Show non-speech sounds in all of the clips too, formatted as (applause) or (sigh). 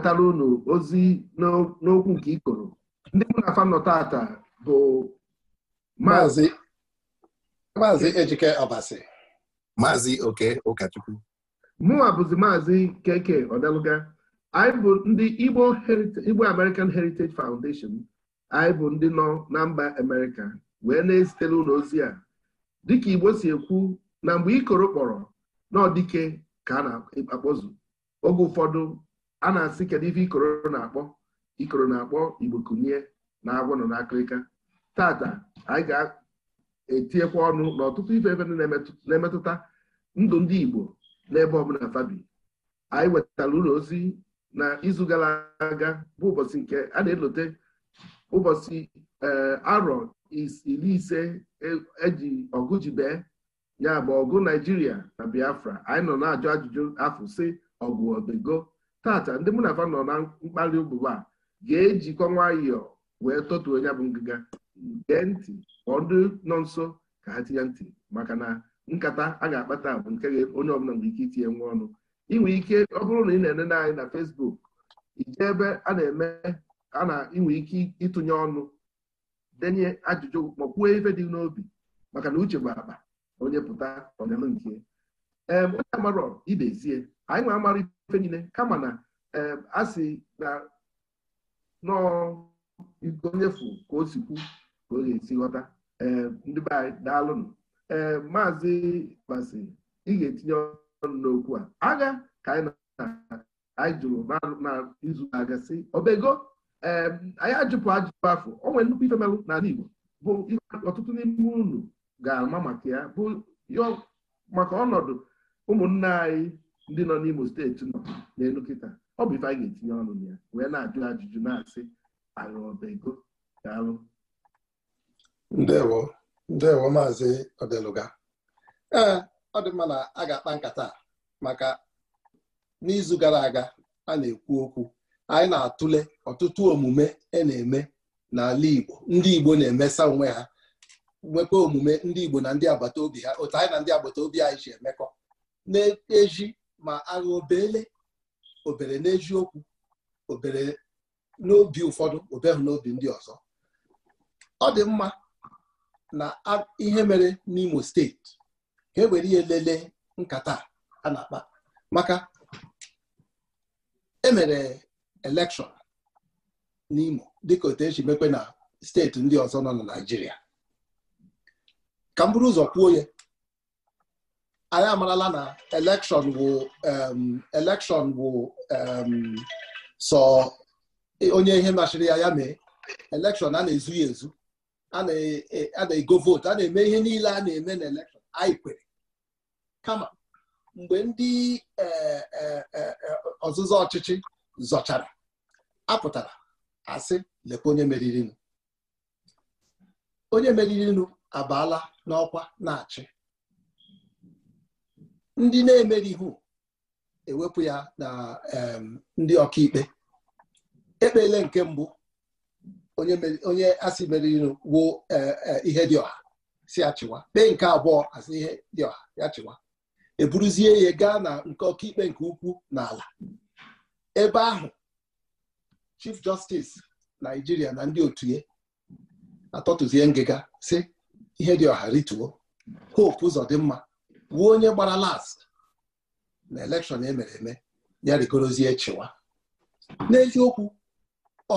wetara unu ozi n'okwu nke ikoro ndị mụ na fanọ tata bụ maazị ejike ọbasi maazị oke ụkọchukwu mụnwa bụzi maazị keke ọdaluga anyị bụ ndị igbo american heritage foundation anyị bụ ndị nọ na mba amerịka wee na-ezitere ụlọ ozi a dịka igbo si ekwu na mgbe ikoro kpọrọ n'ọdike ka a na-akpọzu oge ụfọdụ a na-asị kedu ife ikoro na-akpọ ikoro na-akpọ igbo kunie na agwụ nọ n'akịrịka tata anyị ga-etinyekwa ọnụ n'ọtụtụ ife ebe na-emetụta ndụ ndị igbo n'ebe ọbụla fabi anyị wetara ụlọ ozi na izu gara aga bụ ụbọchị nke a na-elote ụbọchị eh, arọ iri ise e, eji ọgụ ji bee ya bụ ọgụ naijiria na biafra anyị nọ na-ajụ ajụjụ afọ si ọgụ obego tata ndị mụ na afa nọ na mkpali ogbugbu a ga-ejikọ nwayọ wee tọtuo onye bụ ngịga gee ntị kpọọ ndị nọ nso ka ha tinye ntị maka na nkata a ga-akpata bụ nke onye ọbụla nwere ike itinye nwa ọnụ inwe ike ọ bụrụ na ị na-enene anyị na fesbuk ije ebe a na-eme a na inwe ike ịtụnye ọnụ denye ajụjụ ma kwuo ife dị n'obi maka na uche bụ akpa onye pụta ọnyalụ nke ee onye amarọ idezie anyị nwe amara ife niile kama na eh, a sị na igonyefu ka o sikwu ka ọ ga-esi ghọta eh, ndị be anyị daalụnụ ee eh, maazị ị ga-etinye ọnụ n'okwu a agha ka anyị anyị jụrụ n'izu na-aga sị obego anyị ajụpụ ajụpụ afọ o nwere nnukwu ife melụ n'ala Igbo bụ ọtụtụ n'ime unu ga-ama maka ya bụ maka ọnọdụ ụmụnne anyị ndị nọ n'Imo steeti nọ n'elu kịta ọ bụ ife a ga-etinye ọnụ na ya wee na-ajụ ajụjụ na-asị arụọbego arụ ndewo ndewo maazị Odeluga ee ọ dị mma na a ga-akpa nkata maka n'izu gara aga a na-ekwu okwu anyị na-atụle ọtụtụ omume e na-eme n'ala Igbo ndị Igbo na-emesa onwe ha nwekwa omume ndị Igbo na ndị agbata obi ha otu anyị na ndị agbata obi anyị ji emekọ na-eji ma agha obele obere n'eziokwu obere n'obi ụfọdụ obehụ n'obi ndị ọzọ ọ dị mma na ihe mere n'imo steeti ka ewere ihe lelee nkata a na-akpa maka emere elekshọn n'imo dịka otu eji mekwe na steeti ndị ọzọ nọ na Naịjirịa ka m bụrụ ụzọ kwuo ya anyị amarala na elekshọn wụ elekshọn wụ sọ e, onye ihe machiri ya ya mee elekshọn a na-ezu ezu a e, na-ego vootu a na-eme ihe niile a na-eme n'elekshọn elekshọn anyị kwere kama mgbe ndị e, ọzụzụ ọchịchị zọchara apụtara asị lekwa onye meririnụ onye meriri meririnụ abaala n'ọkwa na-achị ndị na emerihu ewepụ ya na ndị ọkaikpe ekpele nke mbụ onye asị meriri wo ihe dị ọha si achịwa kpee nke abụọ asị ihe dị ọha ya chịwa eburuzie ya gaa na nke ọkaikpe nke ukwu n'ala ebe ahụ chief justice naijiria na ndị otu ya atọtụzie ngịga si ihe dị ọha rituo hope ụzọ dị mma wuo onye gbara last na elekshọn emere eme ya rigorozie chịwa n'eziokwu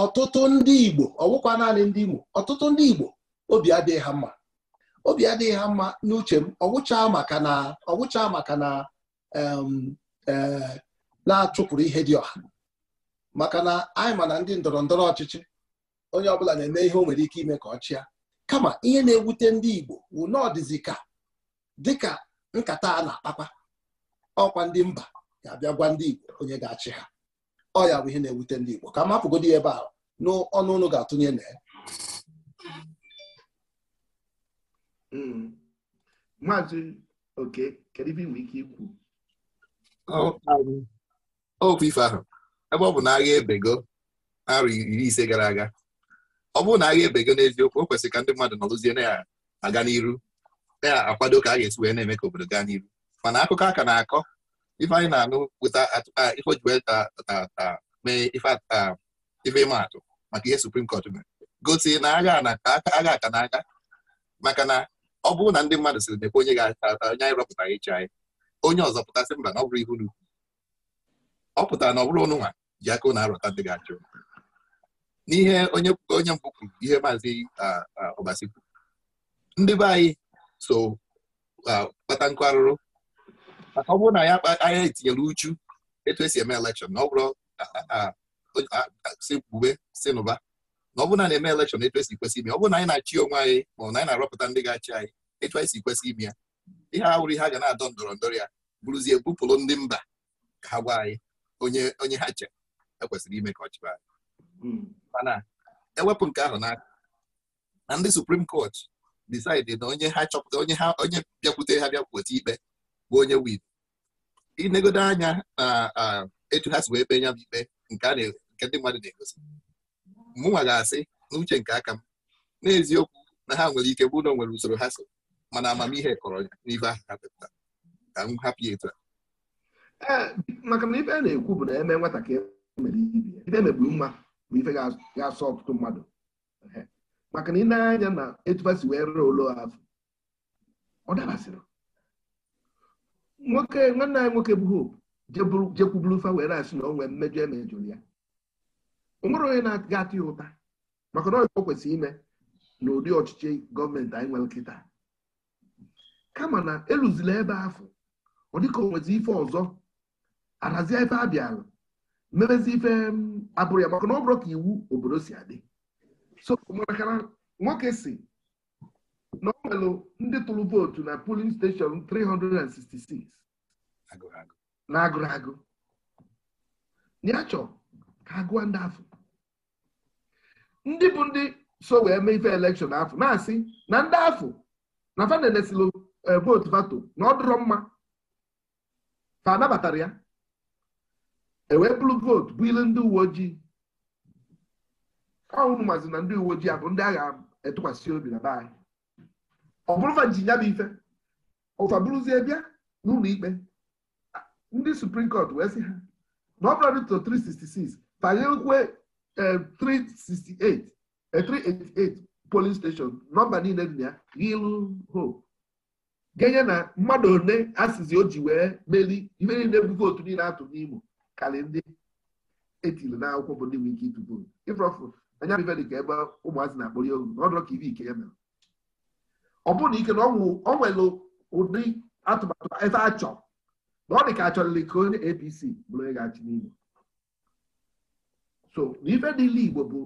ọtụtụ ndị Igbo ọwụkwa naanị ndị Imo ọtụtụ ndị Igbo obi adịghị ha mma obi adịghị ha mma n'uche m ọgwụcha maka na ọgwụcha maka na e, na-achụpụrụ ihe dị ọha maka na anyị ma na ndị ndọrọ ndọrọ ọchịchị onye ọbụla na-eme ihe o nwere ike ime ka ọ chịa kama ihe na-ewute ndị Igbo wụ na dịka nkata a na-akpakwa ọkwa ndị mba ga-abịa gwa ndị Igbo onye ga-achị ha ọ ya bụ ihe na-ewute ndị Igbo ka mapụgodi ebe a n'ọnụ ụlọ ga-atụnye na ya mm. maazị oke kedu ibe inwe ike ikwu okwu um, ife ahụ ebe ọ bụ na agha ebego arọ iri ise gara aga ọ bụrụ na agha ebego n'eziokwu o kwesịrị ka ndị mmadụ nọrụzie na ya aga n'iru na-akwado ka a ga-esi wee na-eme ka obodo gaa n'iru mana akụkọ aka na-akọ ife anyị na-anụ weta ife ojiweta mee ife ịma maka ihe suprim kọt mere gosi na agha aka na aga maka na ọ bụrụ na ndị mmadụ siri mekwe onye ga-ata onye anyị rọpụtara ịchị anyị onye ọzọ pụtasị mba na ọ bụrụ ihu n'ukwu ọ pụtara na ọ bụrụ ọnụnwa ji aka na arọta ndị ga-achụ n'ihe onye mbụ kwuru ihe maazị ọbasi kwuru ndị be anyị so uh, kpata nkụ arụrụ maka ọ bụrụ na ya anya etinyere uchu etu esi eme elekshọn na ọ bụrụ si kwube si nụba na ọ bụrụ na na-eme elekshọn etu esi kwesị ime ọ bụrụ na anyị na-achị onwe anyị ma ọ na anyị na-arọpụta ndị ga-achị anyị etu anyị si kwesị ime ya ihe ahụrụ ihe a ga na-adọ ndọrọndọrọ ya bụrụzie bupụrụ ndị mba ka ha gwa anyị onye onye ha che ekwesịrị ime ka ọ chịba anyị hmm. mana ewepụ nke ahụ n'aka na ndị suprim kọt disaidị na onye ha chọpụta onye ha onye bịakwute ha bịakwute ikpe bụ onye wid inegodo anya na etu ha si wee kpe nya m ikpe nke ndị mmadụ na-egosi mụnwa ga-asị n'uche nke aka m n'eziokwu na ha nwere ike bụ na nwere usoro ha so mana amamihe kọrọ ya n'ibe ahụ ha pụta ka m hapụ ya etu a maka na ife a na-ekwu bụ na eme nwatakịrị mere ibe ife megburu mma bụ ife ga-asọ ọtụtụ mmadụ maka na ị na-anya na etufasi wee rụọ ụlọ afọ ọ dabasịrị nwoke nwanne anyị nwoke bụ hope jekwuburu fa were asị na onwe mmejọ emejọrọ ya o nwere onye na-aga atụ ya ụta maka na ọ kwesịrị ime na ụdị ọchịchị gọọmenti anyị nwere nkịta. kama na elụzila ebe afọ ọ dịka o nwezi ife ọzọ arazi ebe a bịara mebezi ife mm, abụrụ ya maka na ọ bụrụ ka iwu obodo si adị so nwoke si na ọ nwere ndị tụrụ vootu na polin steshọn 366 na agụrụ agụ ya chọọ ka agụọ ndị afọ ndị bụ ndị so wee mee ife elekshọn afọ na-asị na ndị afọ na fanenesilo eh, vootu vato na ọ dụrọ mma fa anabatara ya ewee bụrụ vootu bụ ilu ndị uwe ojii ọnwụ mazi na ndị uwe ojii abụ ndị agha etụkwasị obi na baanyị ọ bụrụfa nji nya bụ ife ụfa bụrụzie bịa n'ụlọ ikpe ndị suprim kọt wee sị ha na ọ bụrụ dịtọ 366 fanyekwe 368 388 polin steshọn nọmba niile dị na ya ilu ho genye na mmadụ ole asịzi o ji wee meli ife niile bụ vootu niile atụ n'Imo karị ndị etiri n'akwụkwọ bụ ndị nwe ike ịtụ vootu anya dị ka ebe ụmụazị na-akpọrọ ya ogu ọdụrọ ka ibe ike ya mere ọ bụrụ na ike na ọ nwere ụdị atụmatụ ebe a chọrọ na ọ dị ka achọrịrị ka onye APC bụrụ onye ga-achị so na ife niile Igbo bụ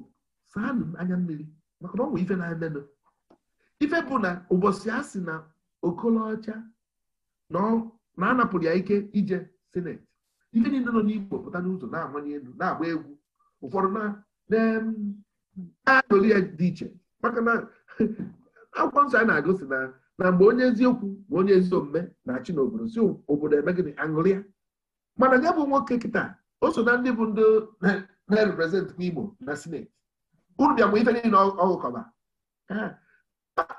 saanụ anya mmiri maka na ọ nwee ife na-emenụ ife bụ na ụbọchị a na okolocha na anapụrụ ya ike ije sineti ife niile nọ n'Igbo pụta n'ụzọ na-amanye elu na-agba egwu ụfọdụ na aṅụrị ya dị iche maka na (laughs) akwụkwọ nsọ anyị na-agụsi na na mgbe onye eziokwu ma onye ezi omume na-achị n'obodo si obodo eme gịnị aṅụrị ya mana gị bụ nwoke kịta o so na ndị bụ ndị (laughs) na-represent n'Igbo na sineti unu bịa mgbe ife niile ọgụkọba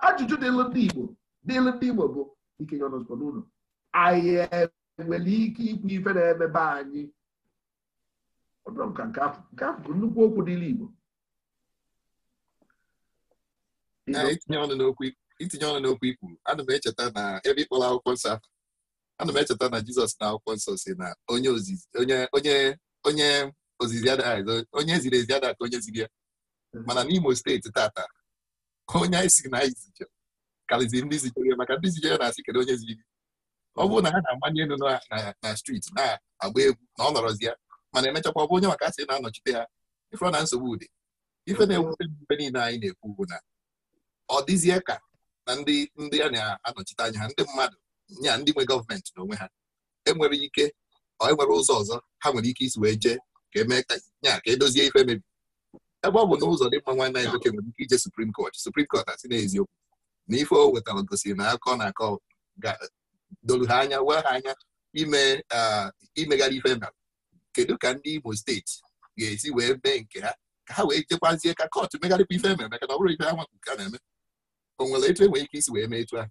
ajụjụ dịlụ ndị Igbo dịlụ ndị Igbo bụ ikenye ọnọzụkọ n'ụlọ anyị enwere ike ikwu ife na-emebe anyị ọdụm nka nke afọ nke ahụ bụ nnukwu okwu dịlụ Igbo itinye ọnụ n'okwu ikwu ana m echeta na ebe ịkpọrọ akwụkwọ nsọ ana m echeta na jizọs na akwụkwọ nsọ si na onye ozizi onye ziri ezi ada ka onye ziri ya hmm. mana n'Imo steeti tata onye anyị si na anyị zije karịziri ndị zijere maka ndị zijere na-asị kedu onye ziri gị ọ bụrụ na ha na-amanye elu na striti na-agba egwu na ọ nọrọzi ya mana emechakwa ọ bụ onye maka asị na-anọchite ha ife ọ na nsogbu dị ife na-ewute mgbe niile anyị na-ekwu ugwu na ọ dịzie ka na ndị ndị a na-anọchite anya ha ndị mmadụ nya ndị nwe gọọmenti onwe ha enwere ike enwere ụzọ ọzọ ha nwere ike isi wee jee ka emee nya ka edozie e ife mebi ebe ọ bụ na ụzọ dị mma nwanne anyị nwoke nwere ike ije suprim kọt suprim kọt asị n'eziokwu na ife o wetara gosiri na akọ na akọ dolu ha anya wee ha anya ime imegharị ife kedu ka ndị imo steeti ga-esi wee mee nke ha ka ha wee jekwazie ka kọt megharịkwa ife e mere maka na ọ bụrụ ife ha ka na-eme o nwere etu enwere ike isi wee mee etu ahụ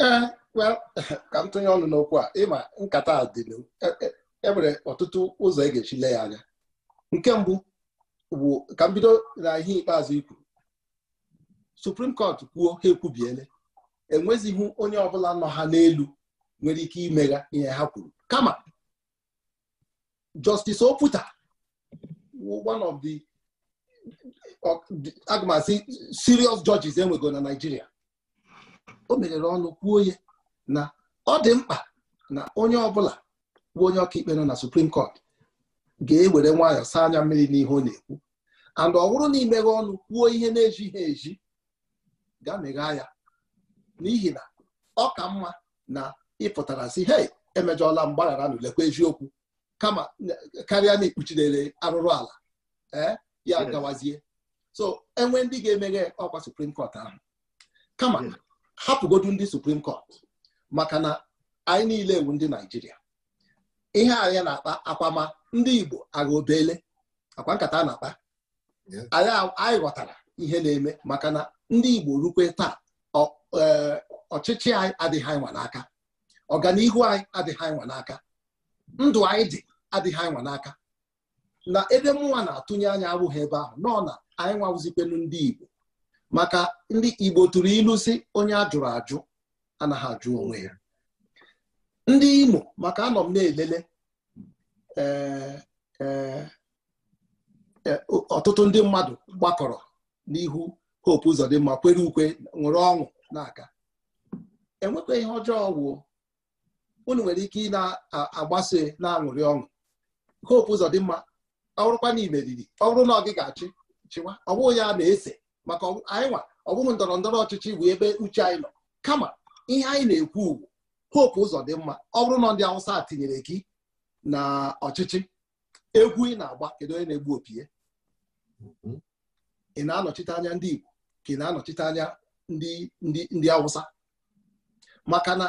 ee eh, (laughs) ka m tụnye ọnụ n'okwu a ịma nkata a dị e, e, e ọtụtụ ụzọ ị e ga-echile ya anya nke mbụ bụ ka m bido na ihe ikpeazụ Supreme Court kwuo ha ekwubiele enwezighị onye ọbụla nọ ha n'elu nwere ike imegha ihe ha kwuru kama Justice Oputa one of the aga sirios asị enwego na Naịjirịa o meghere ọnụ kwuo ya na ọ dị mkpa na onye ọbụla bụ onye ọkaikpe nọ na Supreme Court ga-ewere nwayọọ saa anya mmiri n'ihe ọ na-ekwu and ọ bụrụ na imeghe ọnụ kwuo ihe na-ejighị eji ga meghaa ya n'ihi na ọ ka mma na ịpụtara si he emejọla mgbaghara na lekwa eziokwu kama karịa na ikpuchidere arụrụ ala eh, ya gawazie so enwe ndị ga-emeghe ọkwa suprim kọt ahụ kama hmm. hapụgodu ndị suprim kọt maka na anyị niile ewu ndị naijiria ihe anyị na-akpa akwama ndị igbo agha obele akwa nkata na-akpa anyị ghọtara ihe na-eme maka na ndị igbo rukwe taa e, ọchịchị anyị adịghị anyị nwa n'aka ọganihu anyị adịghị anyị n'aka ndụ anyị dị adịghị anyị n'aka na ebe mụnwa na-atụnye anya abụghị ebe ahụ nọ na anyị nwawụzikwenu ndị Igbo maka ndị Igbo tụrụ ilu si onye a jụrụ ajụ anaghị ajụ onwe ya ndị Imo maka anọ m na-elele eh, eh, eh, ọtụtụ ndị mmadụ gbakọrọ n'ihu Hope Uzodimma kwere ukwe nwere ọṅụ na-aga enwekwa ihe ọjọọ ọgwụ unu nwere ike ị na-agbasa na-aṅụrị ọṅụ Hope Uzodimma ọ bụrụkwa na ibe riri ọ bụrụ na ga-achị chịwa ọ bụghị ya na-ese maka anyị nwa ọ bụghị ndọrọ ndọrọ ọchịchị bụ ebe uche anyị nọ kama ihe anyị na-ekwu ugwu hope ụzọ dị mma ọ bụrụ na ndị awụsa tinyere gị na ọchịchị egwu ị na-agba kedu onye na-egbu opie mm-hmm. ị na-anọchite anya ndị Igbo ka ị na-anọchite anya ndị ndị awụsa maka na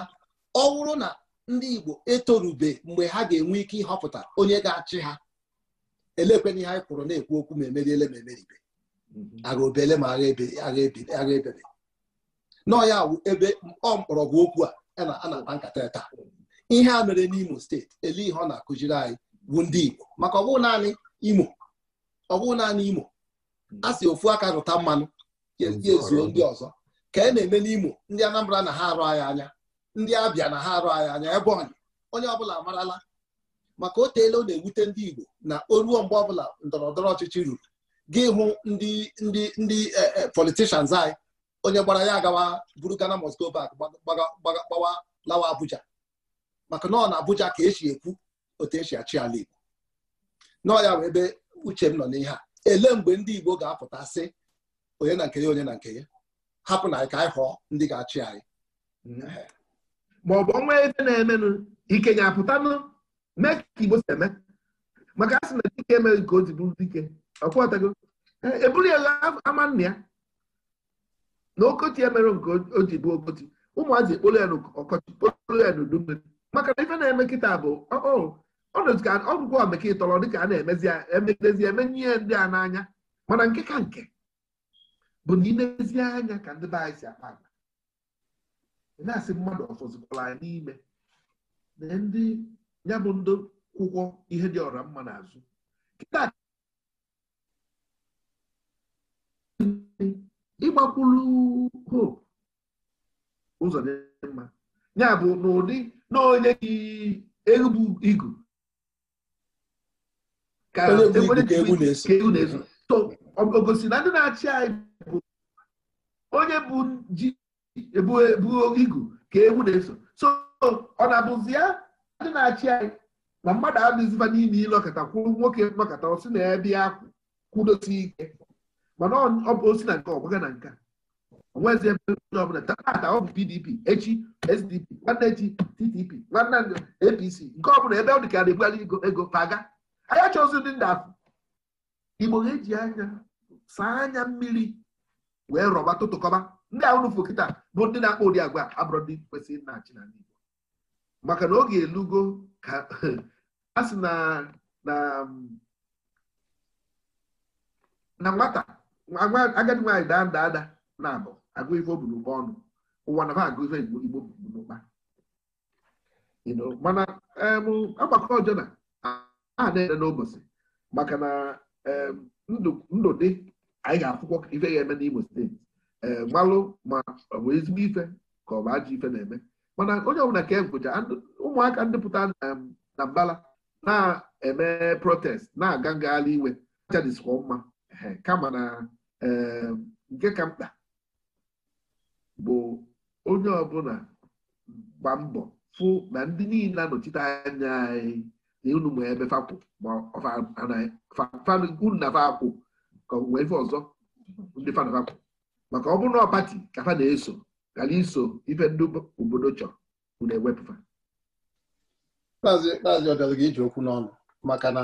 ọ bụrụ na ndị Igbo etorube mgbe ha ga-enwe ike ịhọpụta onye ga-achị ha elekwe na ihe anyị kwụrụ na-ekwu okwu ma emeriele ma emeribe mhm. agha obele ma agha ebebe n'ọya wụ ebe ọ mkpọrọgwụ okwu a na agba nkata taa ihe a mere n'Imo steeti ele ihe ọ na-akụziri anyị bụ ndị Igbo maka ọ bụghị naanị Imo ọ bụghị naanị Imo mhm. a sị ofu aka rụta mmanụ ezuo ndị ọzọ ka e na-eme n'Imo ndị Anambra na ha arụ anyị anya ndị Abịa na ha arụ anyị anya ebe onye onye ọbụla amarala maka o teela ọ na-ewute ndị Igbo na oruo mgbe ọbụla ndọrọndọrọ ọchịchị ruru gị hụ ndị ndị ndị e, e, politishans anyị onye gbara ya agawa buru Ghana must go back gbawa lawa Abuja maka na ọ na Abuja ka esi ekwu otu esi achị ala Igbo nọọ ya wee ebe uche m nọ n'ihe a ele mgbe ndị Igbo ga-apụta sị onye na nke ya onye na nke ya hapụ na ka anyị họọ ndị ga-achị anyị mm-hmm. maọbụ ọnwa ebe na-emenụ ike ga-apụtanụ mee ka igbo si eme maka a sị na dike emeghị ka o ji bụrụ dike ọkwọtago eburu ya ama nna ya na okoti emere nke o ji bụ okoti ụmụazị ekpolu ya n'ọkọchị kpolu ya n'udu mmiri maka na ife na-eme kịta bụ ọnụka ọgwụgwọ omeka ịtọrọ dịka a na-emezi emegidezi eme ihe ndị a n'anya mana nke ka nke bụ na ilezi anya ka ndị be anyị si akpa agba na-asị mmadụ ọfọzikwala n'ime na ndị ya bụ ndị kwụkwọ ihe dị ọra mma n'azụ ịgbakwulu hope ụzọ dị mma ya bụ n'ụdị na onye gị egbu igu na ogosi na ndị na-achị anyị bụ onye bụ ji ebu igu ka egwu na-eso so ọ na-abụzi ya ndị na-achị anyị na mmadụ adịziba n'ime ile ọkata kwuru nwoke mgbakọta osi na ebe ya kwudosi ike mana ọ bụ osi na nke ọgbaga na nka onwezi ebe ọbụla tata ọ bụ PDP echi SDP nwanne echi TTP nwanne APC nke ọbụla ebe ọ dị ka na-ebugharị ego paga anyị achọzi ndị ndị afọ Igbo ha eji anya saa anya mmiri wee rọba tụtụkọba ndị ahụ n'ụfụ kịta bụ ndị na-akpọ ụdị agwa abụrụ ndị kwesịrị na achị na ndị maka na oge elugo ka (laughs) a sị na na um, nwata agadi nwaanyị daa nda ada na-abụ agụ ife oburu ụba ọnụ ụwa na agụ ife igbo n'ụkpa mana um, agbakọ ọjọọ aha a na-ede n'ụbọchị maka na um, ndụ dị anyị ga-akwụkwọ ife ya eme n'Imo steeti malụ ma ọ bụ ezigbo ife ka ọ bụ ajọ ife na-eme mana onye ọbụla ka ekwucha ụmụaka ndịpụta na mbala na-eme protest na-aga ngagharị iwe achadịsikwa mma kama na ehm, nke ka mkpa bụ onye ọbụla gba mbọ fụ na ndị niile anọchite anya anyị na unu ma ebe fapụ ma na fapụ ka wee ife ọzọ ndị fanafapụ maka ọ bụrụ na ọ pati ka fa na-eso kara iso ife ndị obodo chọrọ unu ewepụta kpazi ọbịara gị iji okwu n'ọnụ maka na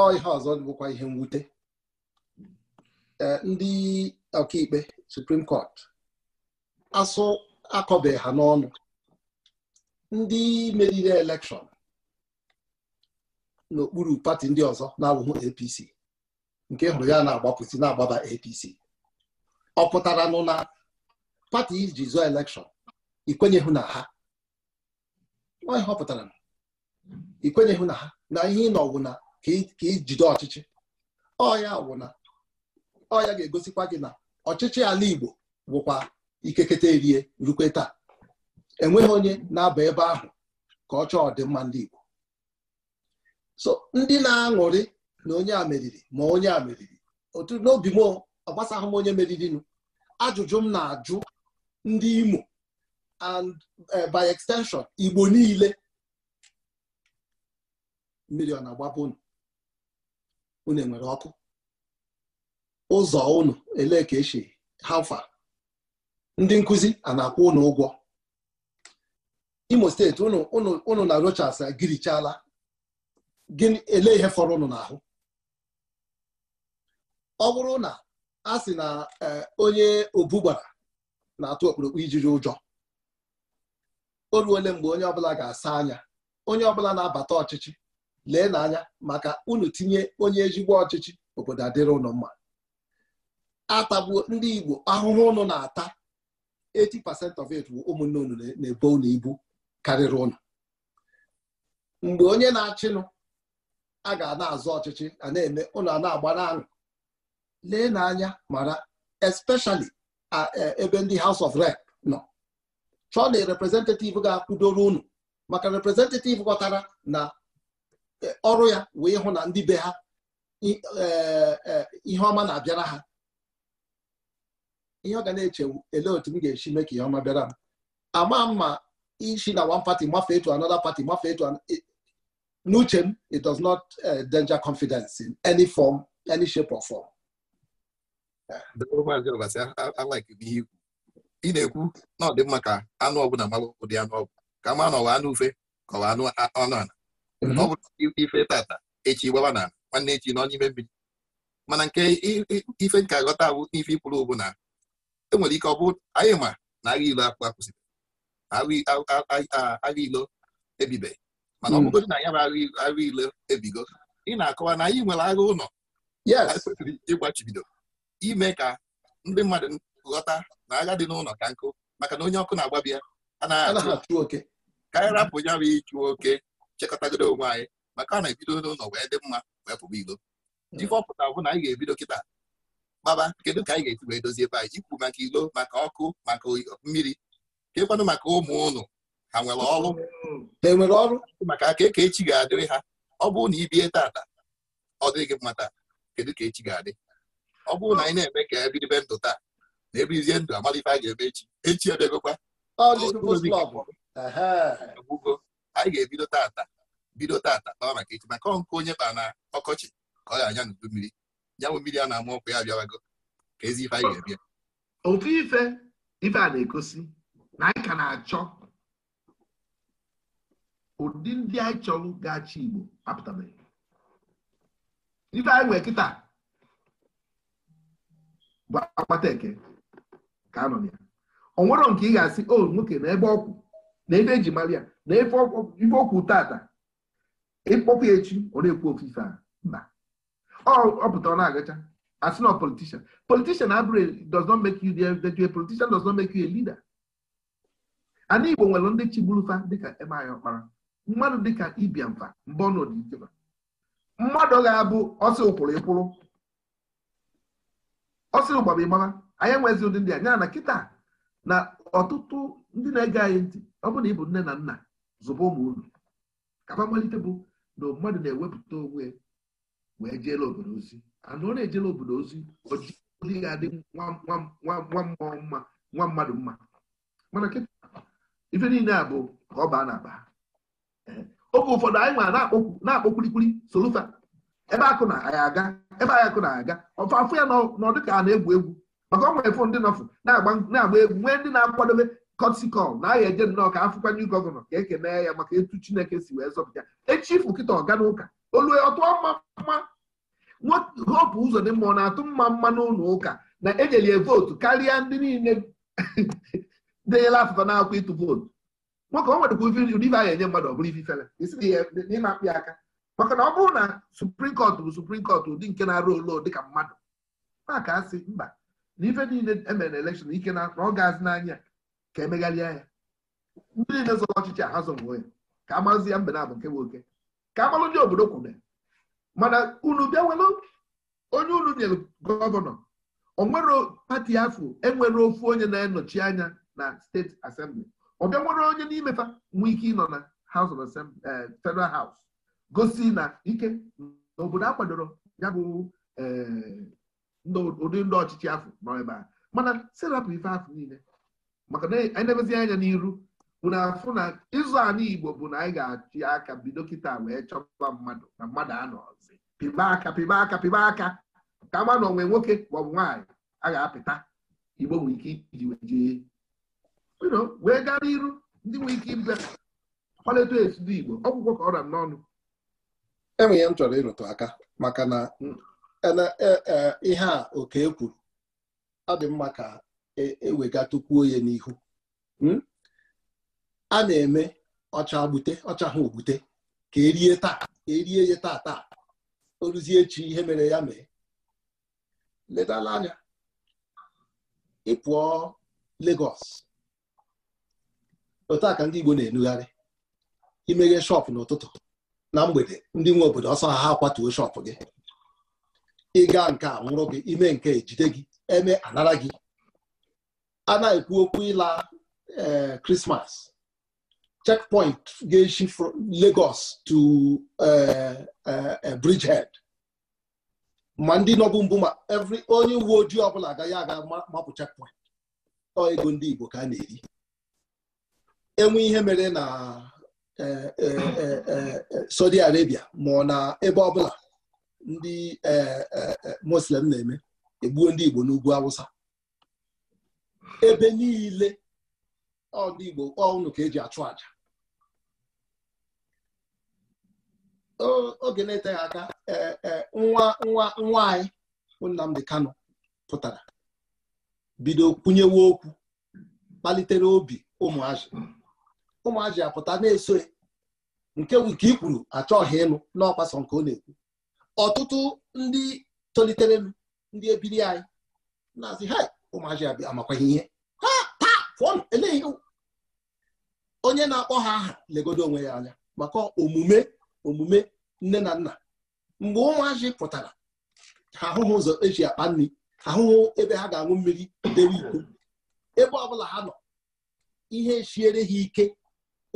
ọ ihe ọzọ bụkwa ihe mwute e, ndị ọkaikpe suprim kọt asụ akọbeghị ha n'ọnụ ndị meriri elekshọn n'okpuru pati ndị ọzọ na-abụghị APC nke hụrụ ya na-agbapụzi na-agbaba APC ọ pụtara nụ pati iji zụọ elekshọn ikwenyeghụ na ha onye họpụtara ikwenyeghụ na ha na ihe ị nọwụ na ka ijide ọchịchị ọya wụna ọya ga-egosikwa gị na ọchịchị ala Igbo bụkwa ikekete erie rukwe taa enweghị onye na-aba ebe ahụ ka ọ chọọ ọdịmma ndị Igbo so ndị na-aṅụrị na onye a meriri ma onye a meriri otu n'obi m ọ gbasaghị m onye meririnụ ajụjụ m na-ajụ ndị Imo and eh, by extension Igbo niile mmiri ọ na-agbapụ unu unu enwere ọkụ ụzọ unu elee ka esi hafa ndị nkụzi a na-akwụ ụnụ ụgwọ Imo steeti unu na Rochas girichala gịnị elee ihe fọrọ unu n'ahụ ọ bụrụ na a sị na eh, onye obu na-atụ okpurukpu ijiri ụjọ o ruole mgbe onye ọbụla ga-asa anya onye ọbụla na-abata ọchịchị lee n'anya maka unu tinye onye ezigbo ọchịchị obodo adịrị ụnụ mma atagbuo ndị Igbo ahụhụ ụnụ na-ata 80% of it bụ ụmụnne unu na-ebo unu ibu karịrị ụnụ mgbe onye na-achịnụ a ga na azụ ọchịchị a na-eme ụnụ a na-agba n'aṅụ lee n'anya mara especially ebe ndị House of Rep nọ chọọ na representative ga akwudoro unu maka representative ghọtara na e, ọrụ ya wee hụ na ndị be ha e, e, ihe ọma na-abịara ha ihe ọ ga na-echewu ele otu m ga-esi mee ka ihe ọma bịara m ama m ma isi na one party mafee to another party mafee to n'uche m it does not danger confidence in any form any shape or form ị na-ekwu na ọ dị mma ka anụ ọbụla mara ụdị anụ ọbụ ka ma na ọwa anụ ufe ka ọwa anụ ọnụ ala mhm. ọ bụrụ ife tata echi gbaba na nwanne echi nọ n'ime mmiri mana nke ife nke aghọta bụ n'ife ikwuru bụ na enwere ike ọ bụ anyị ma na agha ilo akpụ akwụsịrị agha ilo ebibe mana ọ mhm. bụgodị na ya bụ agha ilo ebigo ị na-akọwa na anyị nwere agha ụlọ ya kwesịrị ịgbachibido ime ka ndị mmadụ ghọta na agha dị n'ụlọ ka nkụ maka na onye ọkụ na-agbabi ya anaghị achụ ka anyị rapụ ya bụ ịchụ oke chekọtagoro onwe anyị maka na ebido n'ụlọ wee dị mma wee pụba ilo hmm. ife bụ na anyị ga-ebido kịta gbaba kedu ka anyị ga-esi wee dozie ebe anyị maka ilo maka ọkụ maka mmiri kekwanụ maka ụmụ ụnụ ha nwere ọrụ ha nwere ọrụ maka aka eke echi ga-adịrị ha ọ bụrụ na ibie tata ọ dịghị gị mmata kedu ka echi ga-adị ọ bụrụ na anyị na-eme ka ebe ibe ndụ taa na ebe izie ndụ amalife a ga-eme echi echi ebegokwa egbugo anyị ga-ebido tata bido tata kpawa maka echi maka ọnkụ onye kpa na ọkọchị ka ọ ga-anya n'udu mmiri nyanwụ mmiri a na-ama ọkụ ya abịawago ka ezi ife anyị ga-ebịa otu ife ife a na-egosi na anyị ka na-achọ ụdị ndị anyị chọrọ ga achọ Igbo apụtabeghị ife anyị nwere kịta bụ akpata eke ka anọ ya ọ nwere nke ị ga-asị o nwoke na ebe ọkwụ na ebe eji mara ya na ife ọkwụ tata ịkpọkwa echi ọ na-ekwu ofufe a mba ọ pụta ọ na-agacha asị na politishan politishan abụrụ e, does not make you the politician does not make you a leader ana igbo nwere ndị chigburufa dịka emaya ọkpara mmadụ dịka ibiamfa mbọ ọ nọdụ mmadụ ga-abụ ọsị ụkwụrụ ịkwụrụ ọ sịrị ụgbaba ịgbaba anyị nwezi ụdị ndị a ya na kịta na ọtụtụ ndị na-ege anyị ntị ọ bụrụ na ịbụ nne na nna zụba ụmụ unu kaba mmalite bụ na mmadụ na-ewepụta onwe wee jeela obodo ozi anụ ọ na-ejela obodo ozi ojii ga-adị nwa mmụọ mma nwa mmadụ mma mana kịta ife niile a bụ ka ọ baa na aba oge ụfọdụ anyị nwa na-akpọ kwulikwuli solufa ebe akụ na ya aga ebe akụ na-aga ọfụ ya n'ọdụ ka a na-egwu egwu maka ọnwa efu ndị nọfụ na-agba egwu nwee ndị na-akwadobe kọtikọl na agha eje nnọọ ka afụkwanye gọvanọ ka e mee ya maka etu chineke si wee zọpụta echi ifu kịta ọga n'ụka olue ọtụ mma hopu ụzọ dị mma ọ na-atụ mma mma n'ụlọ ụka na ejelie vootu karịa ndị niile (laughs) denyela afụfa na-akwa ịtụ vootu nwoke o nwere kwa ụdị ife a ga-enye mmadụ ọ bụrụ ife fere isi ihe akpị aka maka na ọ bụrụ na suprim kọt bụ suprim kọt ụdị nke na-arụ olu dịka mmadụ maka asị mba na ife niile emere na elekshọn ike na ọ ga n'anya ka emegharịa ya ndị niile zọrọ ọchịchị a ha ya ka amazi ya mbe na abụ nke nwoke ka agbalụ ndị obodo kwune mana unu bịawelụ onye unu nyere gọvanọ onwere pati afọ enwere ofu onye na enọchi anya na steeti asembli ọ bịa nwere onye n'imefa nwee ike ịnọ na House of eh, Federal haus. gosi na ike na obodo akwadoro kwadoro ya bụ eh, ụdị ndị ọchịchị afọ nọ ebe a mana serapụ ife afọ niile maka na anyị na anya n'iru bụ na afụ na ịzụ anụ igbo bụ na anyị ga-achị aka bido kịta wee chọba mmadụ na mmadụ anọzi pịba aka pịba aka pịba aka ka ma na onwe nwoke maọbụ nwaanyị a ga-apịta igbo nwere ike iji wee jee wee gaa n'iru ndị nwere ike ịbịa kwalite etu igbo ọgwụgwọ ka ọ ra n'ọnụ enwe ihe m chọrọ ịrụtụ aka maka na e, e, e, ihe a oke kwuru ọ dị mma ka ewegatukwuo onye n'ihu hmm? a na-eme ọcha gbute ọcha ha ogbute ka erie taa erie ya taa taa o ruzie echi ihe mere ya mee ledala anya ịpụọ Lagos otu a ka ndị Igbo na-enugharị imeghe shọpụ n'ụtụtụ na mgbede ndị nwe obodo ọsọ ha ha kwatuo shọpụ gị ịga nke a nwụrụ gị ime nke ejide gị eme anara gị a na-ekwu okwu ịla krismas eh, checkpoint ga-eshi legos Lagos to eh, eh, Bridgehead ma ndị nọbụ mbụ ma evri onye uwe ojii ọbụla agaghị aga mapụ chekpoint ọ ego ndị Igbo ka a na-eri enwe ihe mere na Eh, eh, eh, Saudi Arabia ma ọ na ebe ọbụla ndị Muslim na-eme egbuo ndị Igbo n'ugwu Awụsa ebe niile dị Igbo ọnụ ka eji achụ aja oge na-eteghị aka nwa nwa nwa anyị Nnamdi kano pụtara bido kwunyewe okwu kpalitere obi ụmụazị ụmụaji apụta na-eso nke nke i kwuru achọghị ịnụ n'ọkpasọ nke ọ na-ekwu ọtụtụ ndị tolitere ndị ebiri anyị na-asị ha ụmụaji amakwaghị ihe ha ta fụọnụ eleghị onye na-akpọ ha aha legodo onwe ya anya maka omume omume nne na nna mgbe ụmụaji pụtara ha ahụghị ụzọ eji akpa nri ahụhụ ebe ha ga-aṅụ mmiri dewe ikwu ebe ọbụla ha nọ ihe chiere ha ike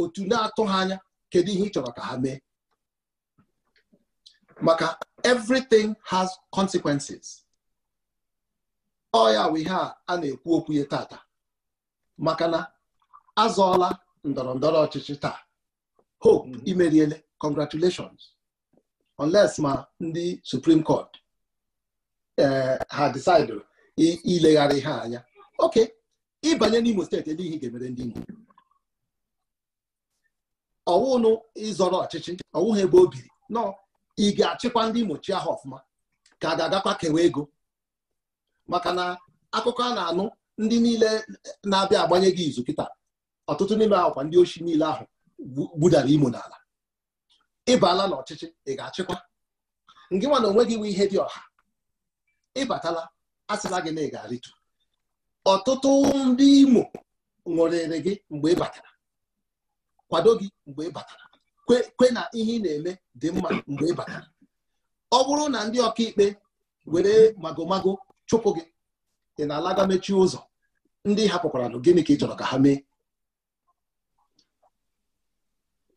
otu na atụghị ha anya kedu ihe ị chọrọ ka ha mee maka everything has consequences ọ ya bụ ihe a na-ekwu okwu ya tata maka na azọọla ndọrọ ndọrọ ọchịchị taa hope mm. imeriele congratulations unless ma ndị supreme court eh, ha decide ilegharị ihe anya oke ịbanye n'Imo steeti ebe ihe ga-emere ndị Imo ọwụnụ ịzọrọ ọchịchị ọwụghị ebe o biri nọ ị ga-achịkwa ndị mochi ahụ ọfụma ka a ga-agakwa kewe ego maka na akụkọ a na-anụ ndị niile na-abịa agbanye gị izu kịta ọtụtụ n'ime akwa ndị ochi niile ahụ gbudara imo n'ala ịbala n'ọchịchị ị ga-achịkwa ngị nwa na onwe gị nwe ihe dị ọha ịbatala asịla gị na ị ga-arịtu ọtụtụ ndị imo ṅụrịrị gị mgbe ị batara kwado gị mgbe ị batara kwe na ihe ị na-eme dị mma mgbe ị batara ọ bụrụ na ndị ọkaikpe were magomago chụpụ gị ị na-alaga mechie ụzọ ndị hapụkwara gịnị ka ị chọrọ ka ha mee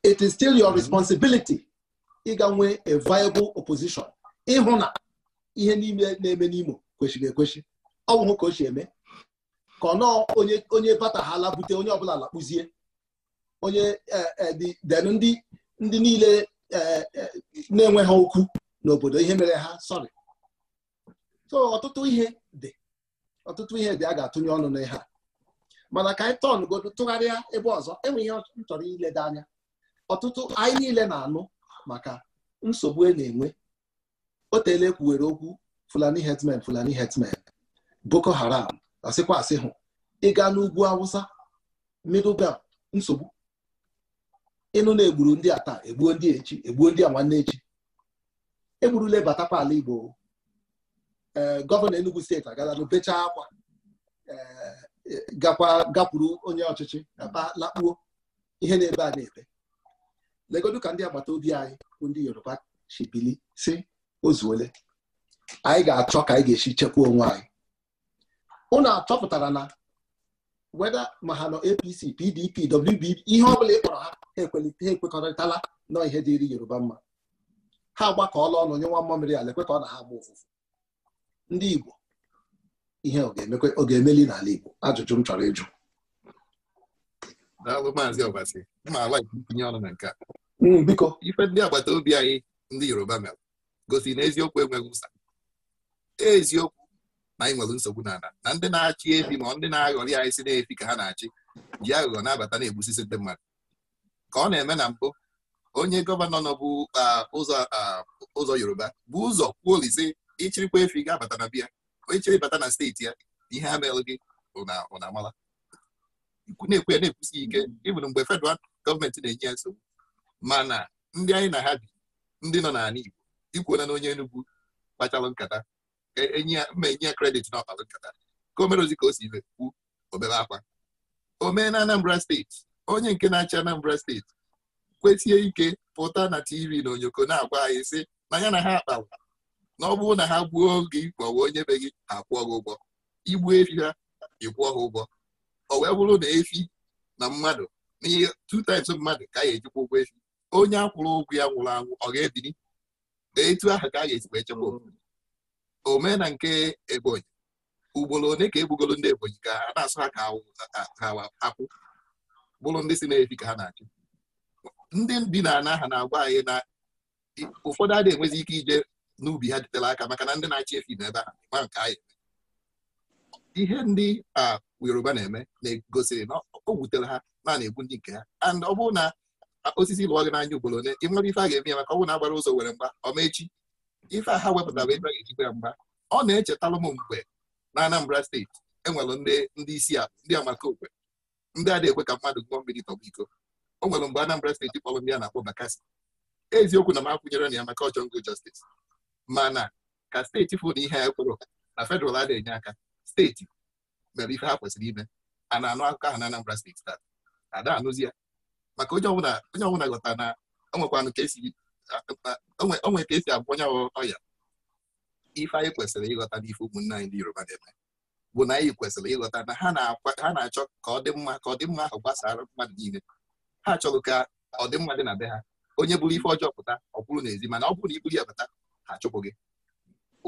it is still your responsibility ịga nwee a viable opposition ịhụ na ihe niile na-eme n'Imo kwesịrị ekwesị ọ bụghị ka o si eme ka ọ nọọ onye onye bute onye ọbụla lakpụzie onye e, e, den ndị ndị niile e, na enweghị ha okwu n'obodo ihe mere ha sọrị so ọtụtụ ihe dị ọtụtụ ihe dị a ga-atụnye ọnụ n'ihe a mana ka anyị tọn tụgharịa ebe ọzọ enwe ihe ile dị anya ọtụtụ anyị niile na-anụ maka nsogbu e na-enwe Oteele teela okwu fulani herdsmen fulani herdsmen boko haram asịkwa asị hụ ịga n'ugwu awụsa middle nsogbu ịnụ na-egburu ndị a taa egbuo ndị echi egbuo ndị a nwanne echi egburula batakwa ala Igbo eh, gọvanọ Enugu steeti agala n'obechaa akwa eh, eh, gakwa gakwuru onye ọchịchị na lakpuo ihe na-ebe a na-ebe legodu ka ndị agbata obi anyị bụ ndị Yoruba chibili si ozuole anyị ga-achọ ka anyị ga-esi chekwaa onwe anyị achọpụtara na weda ma ha nọ apc pdp wdp ihe ọbụla ị kpọrọ ha ha ekwekọrịtala nọ ihe dịịrị yoruba mma ha agbakọọla ọnụ nye nwa mmamịrị ala ekwe ka ọ na ha gba ụfụfụ ndị igbo ihe ọ ga-emeli n'ala igbo ajụjụ m chọrọ ịjụ maazị ma ala ọnụ na nke a hmm, biko ife ndị agbata obi anyị ndị yoruba mere gosi na eziokwu enweghị ụsa eziokwu na anyị nwere nsogbu n'ala na ndị na-achị efi ma ndị na-aghọrị anyị si na-efi ka ha na-achị ji aghụghọ na-abata na-egbusisi ndị mmadụ ka ọ na-eme na mbụ onye gọvanọ nọ bụ ụzọ yoruba bụ ụzọ kwuolizi ịchịrịkwa efi ga-abata na bịa onye chịrị bata na steeti ya ihe a merụ gị na-amala na-ekwe na-ekwusi ike ịbụrụ mgbe fedral gọọmenti na-enye ya nsogbu mana ndị anyị na ha bi ndị nọ n'ala Igbo ikwuona na onye Enugu kpachara nkata enye e ya mma ya kredit na ọkpalụ nkata ka o ozi ka o si kwu obere akwa o mee na Anambra steeti onye nke na-achị Anambra steeti kwesie ike pụta na tv na onyoko na-agwa anyị sị na ya na ha akpawa na ọ bụrụ na ha gbuo gị maọbụ onye be gị ha kwụọ gị ụgwọ igbu efi ha ịkwụọ ha ụgwọ ọ wee bụrụ na efi na mmadụ n'ihe ihe times mmadụ ka a ga-ejikwa ụgwọ efi onye akwụrụ ụgwọ ya nwụrụ anwụ ọ ga-ebiri etu ahụ ka a ga-esikwa echekwa omena nke ebonyi ugboro one ka egbugoro ndị ebonyi ka a na-asụ ha ka akwụ bụrụ ndị si na-efi ka ha na-achụ ndị bi na ana ha na-agwa anyị na ụfọdụ adịghị enwezi ike ije n'ubi ha jitere aka maka na ndị na-achị efi ebe ha a nke anyị ihe ndị a yoruba na-eme na-egosiri na o wutere ha na na-egbu ndị nke ha and ọ bụrụ na osisi lụọ gị n'anya ugboro one ị nwere ife a ga-eme ya maka ọ bụrụ na agbara ụzọ were mgba ọma echi ife a ha wepụtara ebe a ga mgba ọ na-echetara m mgbe na Anambra steeti enwere ndị isi a ndị amakokwe ndị a na-ekwe ka mmadụ gụọ mmiri tọba iko o nwere mgbe Anambra steeti kpọrọ ndị a na-akpọ Bakassi eziokwu na m akwụnyere na ya maka ọjọọ ngo mana ka steeti fụ na ihe a ekwere na fedral a na-enye aka steeti mere ife ha kwesịrị ime a na-anụ akụkọ ahụ na Anambra steeti taa ada anụzi ya maka onye ọbụla ghọta na o nwekwanụ ka esi onwe ka esi agwa onye ọya ife anyị kwesịrị ịghọta n'ife ụmụnne anyị ndị yoruba na-eme bụ na anyị kwesịrị ịghọta na ha na-achọ ka ọ dị mma ka ọdịmma ahụ gbasara mmadụ niile ha achọghị ka ọdịmma dị na be ha onye bụrụ ife ọjọọ pụta ọ bụrụ n'ezi mana ọ bụrụ na iburu ya pụta ha chụpụ gị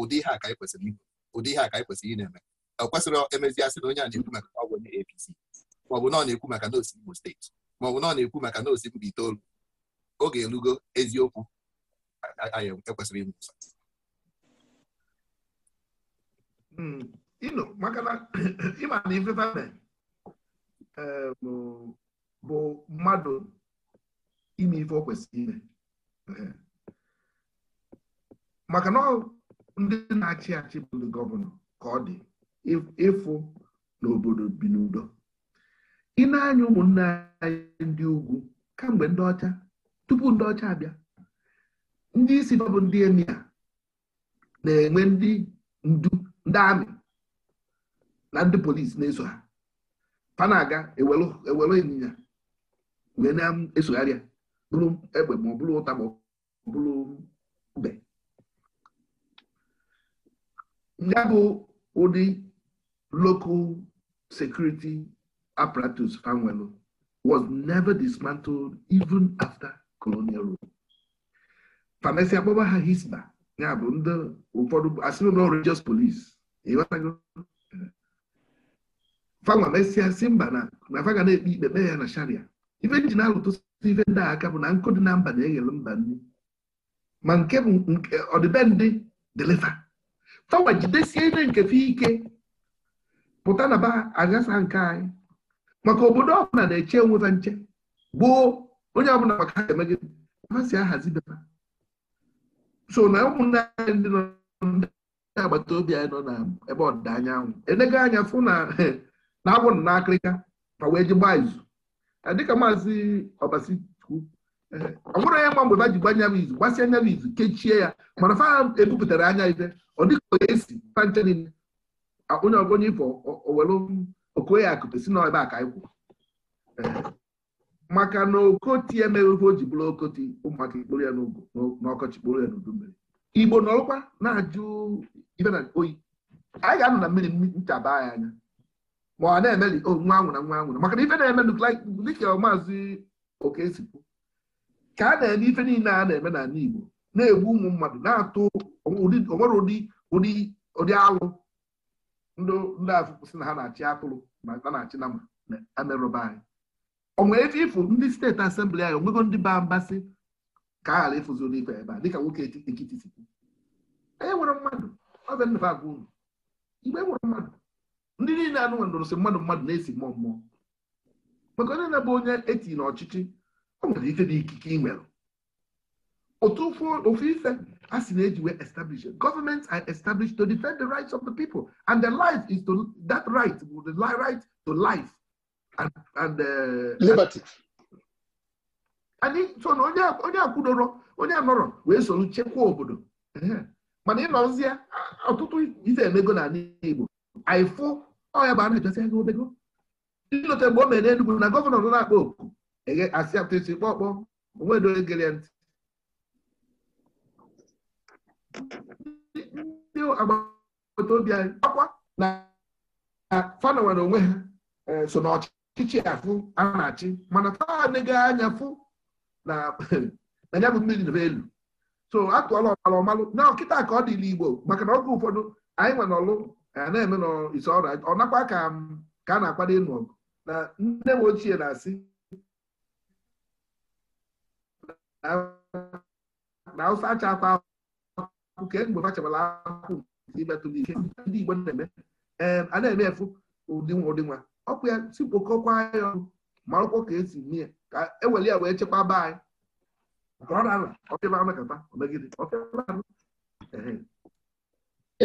ụdị ihe a ka anyị kwesịrị ụdị ihe a ka anyị kwesịrị ị na-eme ọ kwesịrị emeziasị na onye a na-ekwu maka ọgwụ bụ APC maọbụ na ọ na-ekwu maka na Imo steeti maọbụ na ọ na-ekwu maka na osi itoolu oge elugo eziokwu anyị ekwesịrị inwe ụsa hmm, maka (clears throat) ịma na bụ mmadụ ime ife o kwesịrị ime maka na ndị na-achị achị bụ ndị gọvanọ ka ọ dị ịfụ n'obodo bi n'udo ị na-anya ụmụnne anyị ndị ugwu kamgbe ndị ọcha tupu ndị ọcha abịa ndị isi bụ ndị emi na-enwe ndị ndu ndị amị na ndị polisi na-eso ha fa aga ewere ịnyịnya wee na-esogharịa bụrụ egbe ma ọ bụrụ ụta ma ọ bụrụ ube ya bụ ụdị local security apparatus fanwelu was never dismantled even after colonial rule fanesi akpọba ha hisba ya bụ ndị ụfọdụ asịrị na religious police uh, fanwa mesịa uh, si mba na ga na-ekpe ikpe kpee ya na sharia ife ji na-alụtụsị ife ndị aka bụ na nkụ dị na mba na-eghele mba nri ma nke bụ ọdịbendị deliva fanwa jidesie ihe nke fe ike pụta na ba agasa nke anyị maka obodo ọbụla na-eche onwe nche gboo onye ọ bụla maka ha emegide ha si ahazi beba so na ụmụnne anyị ndị nọ ndị agbata obi anyị nọ na ebe ọdịda anyanwụ enego anya fụ na na-abụ (laughs) na akịrịka ma wee ji gbaa izu dịka maazị ọbasi eh, ọ bụrụ onye mgbe ba ji gbanye m izu gbasịa anya m izu kechie ya mana fa ebupụtara anya ife ọ dịka onye esi fanche niile onye onye ifo owelu okoye akụpe si na ebe a ka anyị kwụ eh, maka na okoti emeghị o ji bụrụ okoti ụmụaka ikporo ya n'ọkọchị kporo ya n'udu mmiri igbo n'ọkwa na-ajụ na oyi anyị ga-anọ na mmiri nchaba anyị anya ma ọ na-emeli oh, nwa anwụna nwa anwụna maka na ife na-eme dịka maazị okesikwu ka a na-eme ife niile a na-eme n'ala igbo na-egbu ụmụ mmadụ na-atụ onwere ụdị alụ ndị afụ kwụsị na ha na-achị atụrụ ma na-achị na ma amerụba anyị o nwere ebe ndị steeti asembli anyị onwego ndị baa mbasị ka ala ghara ịfụziri ife ebe a dịka nwoke ekiti sikwu onye nwere mmadụ ọbịa nnụba agwa unu e nwere mmadụ ndị niile anụ nwere ndụrụsị mmadụ mmadụ na-esi mmụọ mmụọ maka onye na-abụ onye eti na ọchịchị o nwere ife na ikike ị nwere otu ofu ife a sị na-eji wee establish gọọmenti are established to defend the rights of the people and the life is to that right the right to life and, and uh, liberty anyị so na onye akwụdoro onye anọrọ wee soro chekwaa obodo mana ịnọzie ọtụtụ ife emego na ala Igbo anyịfụ ọya bụ a na-ejosi ego obego ilota mgbe o mere Enugu na gọvanọ nọ na-akpa oku asị atụsi kpọkpọ onwedo egere ntị ndị agbata obi anyị akwa na fanọ nwere onwe ha eh, so n'ọchị chichi afụ a na-achị mana taa nega anya fụ na ya bụ mmiri na elu so atụọla ọmalụ ọmalụ na ọkịta ka ọ dịla igbo maka na oge ụfọdụ anyị nwe n'ọlụ na-eme n'ise ọrụ ọ nakwa ka a na-akwado ịnụ ọgụ na nne m ochie na-asị na ụsa achakwa akwụ ke mgbe fachabala akwụ imetụla ike ndị igbo na-eme a na-eme efu ụdị nwa ụdị nwa Ọkpụ ya si kpokọkwa ya ọnụ marụkwọ ka esi mee ya ka ewere ya wee chekwaba anyị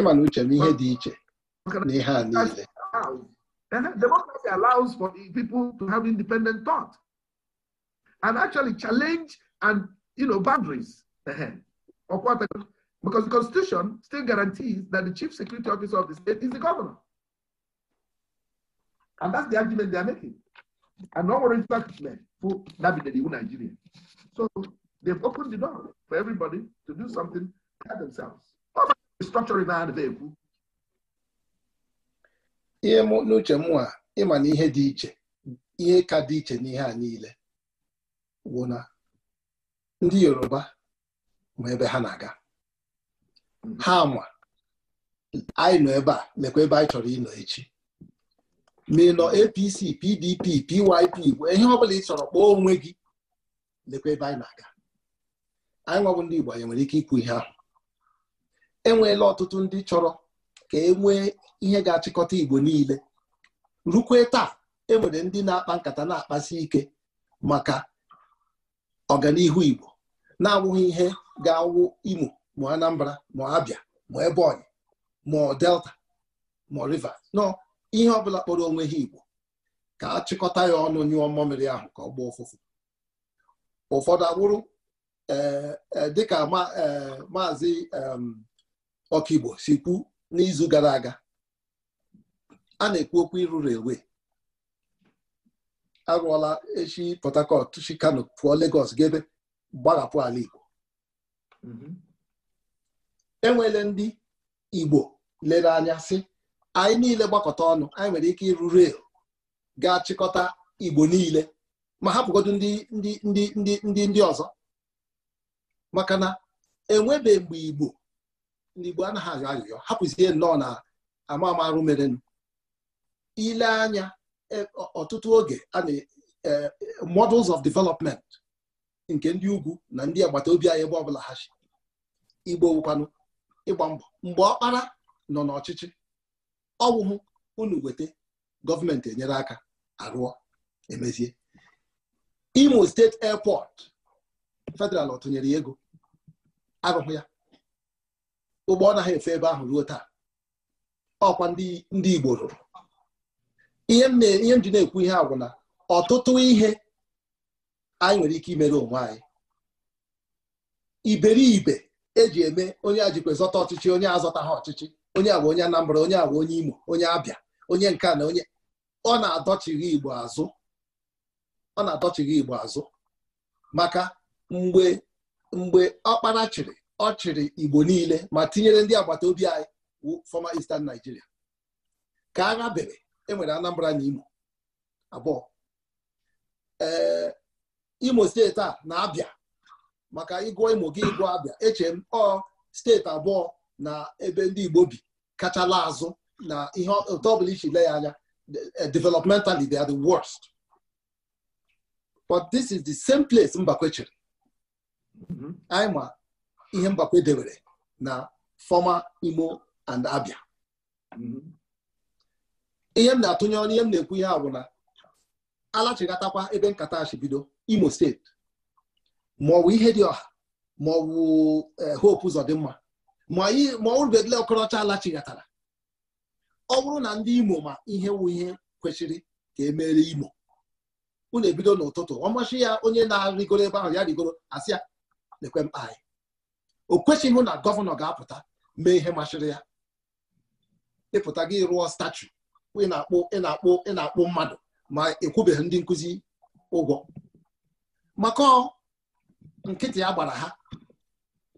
ịma na uche m ihe dị iche na ihe a niile democracy allows for people to have independent thought and actually challenge and you know boundaries because the constitution still guarantees that the chief security officer of the state is the governor And that's the argument they are making. And no orange men who navigated iwu Nigeria. So they've opened the door for everybody to do something by themselves. Restructuring our vehicle. ihe n'uche m a ịma na ihe dị iche ihe ka dị iche n'ihe a niile wụ na ndị yoruba ma ebe ha na-aga ha ma anyị nọ ebe a lekwa ebe anyị chọrọ ịnọ echi ma ị nọ apc pdp pyp gwee ihe ọbụla ị chọrọ kpọọ onwe gị lekwa ebe anyị na-aga anyị nwabụ ndị igbo anyị nwere ike ikwu ihe ahụ enweela ọtụtụ ndị chọrọ ka e nwee ihe ga-achịkọta igbo niile rukwe taa e nwere ndị na-akpa nkata na-akpasi ike maka ọganihu igbo na-awụghị ihe ga-awụ imo ma anambra ma abịa ma ebonyi ma delta ma rivers nọ ihe ọbụla bụla kpọrọ onwe ha Igbo ka achịkọta ya ọnụ nyụọ mmamịrị ahụ ka ọ gbaa ụfụfụ ụfọdụ dị eh, eh, dịka eh, maazị ọkaigbo si kwu n'izu gara aga a na-ekwu okwu ịrụrụ ewe arụọla echi Port Harcourt chi Kano pụọ Lagos gebe gbarapụ ala Igbo mhm. enwele ndị Igbo lere anya sị anyị niile gbakọta ọnụ anyị nwere ike ịrụ rel ga-achịkọta igbo niile ma hapụgodu ndị ndị ọzọ maka na enwebe mgbe igbo ndị igbo anaghị ayọ ayụyọ hapụzie nnọọ na ama amarụ merenụ ile anya e, ọtụtụ oge a na e, models of development nke ndị ugwu na ndị agbata obi anyị ebe ọbụla ha igbo wụkwanụ ịgba mbọ mgbe ọkpara nọ n'ọchịchị ọwụhụ unu weta gọọmenti enyere aka arụọ emezie imo steeti airport federal ọ tụnyere ya ego arụhụ ya ụgbọ ọnaghị efe ebe ahụ ruo taa ọkwa ndị igbo rụrụ ihe m na-ekwu ihe agwụ na ọtụtụ ihe anyị nwere ike imere onwe anyị iberibe eji eme onye a jikwa zọta ọchịchị onye azọta ha ọchịchị onye agwa onye Anambra onye agwa onye Imo onye Abịa onye nke na onye ọ na adọchighị Igbo azụ ọ na adọchighị Igbo azụ maka mgbe mgbe ọkpara chịrị ọ chịrị Igbo niile ma tinyere ndị agbata obi anyị former Eastern Nigeria ka agha bere enwere Anambra na Imo abụọ ee Imo steeti a na Abịa maka ịgụọ Imo gị ịgụọ Abịa eche m ọ steeti abụọ na ebe ndị Igbo bi kachala azụ na ihe otu ọbụla isi le ya anya eh, developmentally they are the worst but this is the same place Mbakwe chere mm-hmm. anyị ma ihe Mbakwe debere na former Imo and Abia mm-hmm. ihe m na-atụnye ọnụ ihe m na-ekwu ihe a bụ na alachigatakwa ebe nkata bido Imo steeti ma ihe dị ọha ma ọ bụ eh, Hope mma. ma orubedile ọkọrọcha alachighatara ọ bụrụ na ndị imo ma ihe wụ ihe kwesịrị ka emere imo unu ebido n'ụtụtụ ọmasị ya onye na-arịgoro ebe ahụ ya rigoro asị ya lekwe mkpa anyị o kwesịghị na gọvanọ ga-apụta mee ihe masịrị ya ịpụta gị rụọ statu ị na-akpụ ị na-akpụ ị na-akpụ mmadụ ma ekwubeghị ndị nkụzi ụgwọ maka nkịtị ya gbara ha